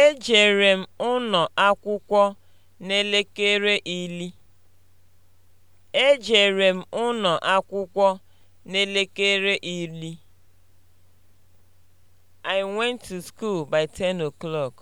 Ejere m ụnọ akwụkwọ n'elekere ili. Ejere m ụnọ akwụkwọ n'elekere ili. I went to school by 10 o'clock.